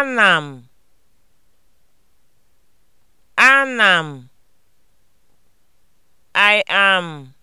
Ana m Ana m I am